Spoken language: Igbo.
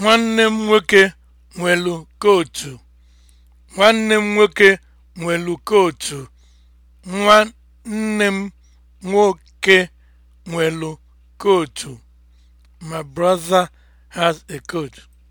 nwanne m nwoke nwelu kootu nwanne m nwoke nwelu kootu nwanne m nwoke nwelu kootu my brother has a coat